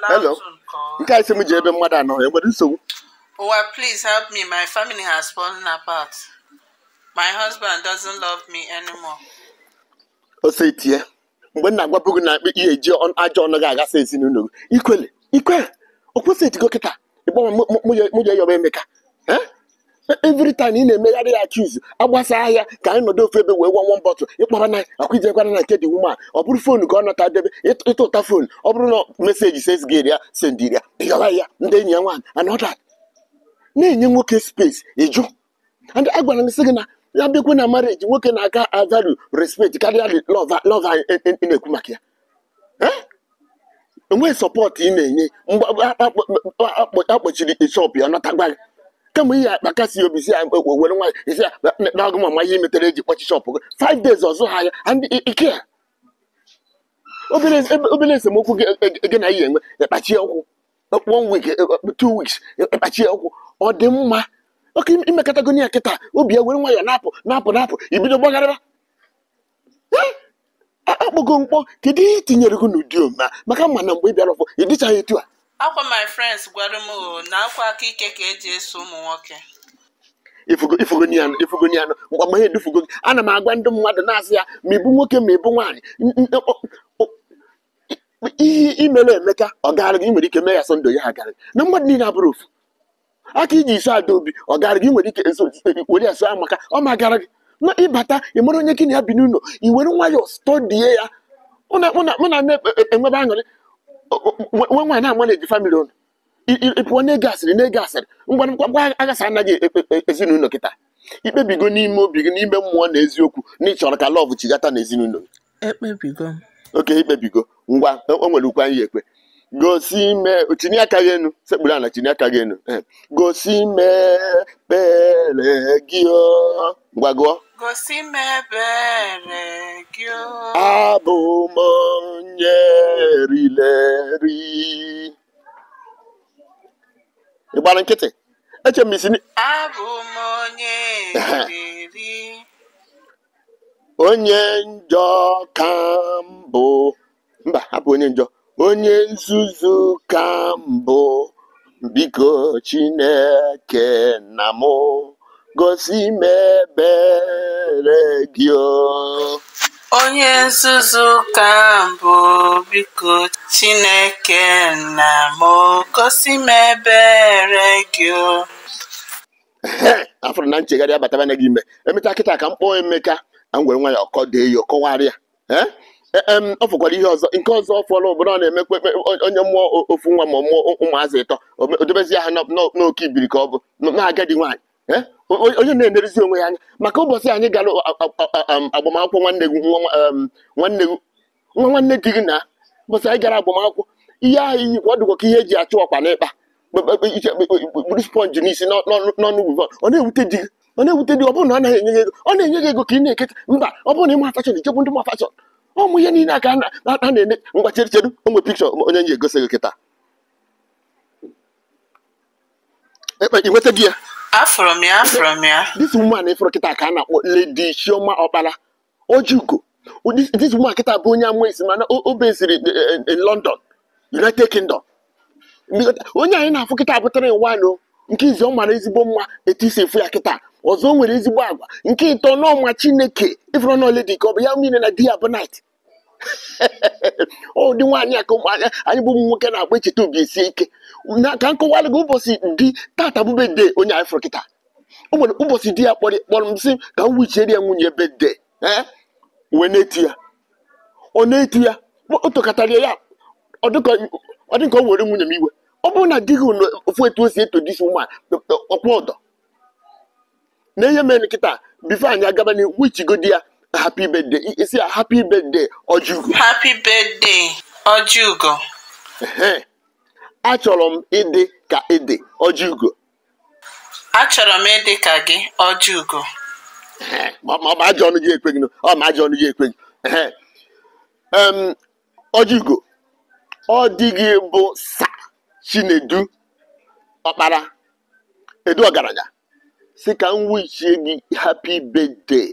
Hello. Nke a isi m ji ebe mmadụ anọ nwere nsogbu. Ụwa please help me. My family has fallen apart. My husband doesn't love me anymore. Ose itie. Mgbe m na-agwapụ na na ihe eji ajọ ọnụ gị agasa ezinụlọ gị. Ikwele, ikwele, o eti etigo kịta. Ịgbanwe mụ ya yọba Emeka. every time ị na-emegharị ya akiz agbasa ahịa ka anyị nọdụ ofe ebe wee gwa nwa bọtụ ịkpara na akwụjekwana na nke dị nwuma ọ bụrụ fon ka ọ nọta debe ịta ụta ọ bụrụ na meseji sesgeri ya sendiria ịghọla ya ndị enyi ya nwaanyị anọda na-enye nwoke spesi ịjụ and agwara m sị gị na ya bịakwa na marriage nwoke na-aka avalu respect karịa lọva ị na-ekwu maka ya enweghị eh? sọpọtụ ị na-enye akpọchiri shọpụ ya nọtagwa gị kemgbe ihe akpa kasị obi si ya ekwe were nwaanyị isi na ọgụ mama ihe metere eji kpọchi shọpụ gị five days ọzọ ha ya ike ya obere esemokwu gị e, na ihe enwe ekpachi ọkwụ one week e, two weeks ekpachie ọkwụ ọ dị mma oke imekọtago ya kịta obi ya were nwa ya na-apụ na-apụ na-apụ ibido gbagharịba akpọgo mkpọ kedu ihe itinyere gị n'ụdị ome maka mma na mgbe ị bịara ọfọ ị dịchaghị etu a akwa my friends gwara m oh, na akwa aka ike ka eji eso ụmụ nwoke ifugoifugoifugoianụ mgbe edufugo gị ana m agwa ndị mmadụ na-asị ya ma ịbụ nwoke ma ịbụ nwaanyị ihe imere emeka ọ gaara gị nwere ike mee ya sọndụ ya ha gara na mmadụ niile abụrụ ofu aka iji iso ada obi ọ gaara gị nwere ike were ya so ya maka ọ ma gara gị na ịbata ị mara onye gị na ya bi n'ụlọ i were nwayọọ stọdie ya mụ enwebe aṅụrị nwe nwaanyị na-ama na-eji famili unu ịpụọ na-ege asịrị na-ege asịrị ngwa ngwa aghasa anaghị e, e, e, ezinụlọ kịta ikpebigo n'ime obi gị n'ime mmụọ na eziokwu na ịchọrọ ka lọv chigata na ezinụlọ gị ekpebigo oke ikpebigo ngwa o nwere ukwu anyị ekwe gosi ime tinye aka gị enu sekpuru ala tinye aka gị enu eh, gosi mebere gị ngwa gụọ abụ m E gbara nkịtị eche m isi onye njọ ka mbụ mba abụ onye njọ onye nzuzu ka mbụ biko chineke na mụ gosi Mebere gị onye nzuzu ka mbụ biko chineke na m gosi m ebere gị o na nchegharị abatabana gị ime emecha kịta ka m kpọọ emeka a m nwa ya ọkọ dee ya ọkọwarị ya e, ọ fụkwara ihe ọzọ nke ọzọ fọrọ obodo ọ na-emekwa onye mmụọ ofu nwa ma ọ mụọ ụmụazị ịtọ o ha ha n'oke ibiri ka ọ bụ na agadi nwaanyị Eh? onye na-enerezi onwe ya anya maka ụbọchị anyị gara agbamakwụkwọ nwanne gị nwa nwanne gị na ụbọchị anyị gara agbamakwụkwọ ihe ahụ iyi ka ọ dịkwa ka ihe eji achụ ọkwa na ịkpa buru sponji n'isi n'ọnụ ugwu ọ na-ewute di ọ na-ewute di ọ bụrụ na ọ naghị enye ego ọ na-enye gị ego ka ị na-eketa mba ọ bụrụ na ịma fashọn ichekwu ndị ma fashọn ụmụ ihe niile aka a na-eme ngwa chere chedu onwe pikchọ onye nye egosi gị kịta e, e, nweta gị ya Afọrọ m ya afọrọ m ya this woman ịfụrụ kịta ka a na-akpọ Lady Chioma Okpala Ojiugo this woman kịta bụ onye ama esi mana o beziri London United Kingdom onye anyị na-afụ kịta abụtara nwanụ nke izi ọ mara ezigbo mma etu isi efu ya kịta ọzọ o nwere ezigbo agwa nke ịtọ n'ọma Chineke ịfụrụ na ledi ka ọ bụ ya niile na di ya bụ night ụdị nwaanyị a ka ụmụanya anyị bụ ụmụ nwoke na-agba icheta obi isi ike na ka nkọwalụ gị ụbọchị dị tata bụbe de onye afro kịta o ụbọchị di ya kpọrọ kpọrọ m sị ka m ya nwunye ebe de wee na-eti ya ọ na-eti ya o ya ọ dị ka ọ nwere nwunye m iwe ọ bụrụ na di gị ofu etu o si eto disi ụmụ ọkwa ọdọ na enye mere nkịta bifo anyị agaba n'ihu di ya happy birthday isi ya happy birthday Ojiugo happy birthday Ojiugo achọrọ m ịdị ka ịdị Ojiugo achọrọ m ịdị ka gị Ojiugo ọ ọ ma ajọ ọnụ gị ekweghị ọ bụ sa Chinedu ọkpara edu ọgaranya si ka m wichie gị happy birthday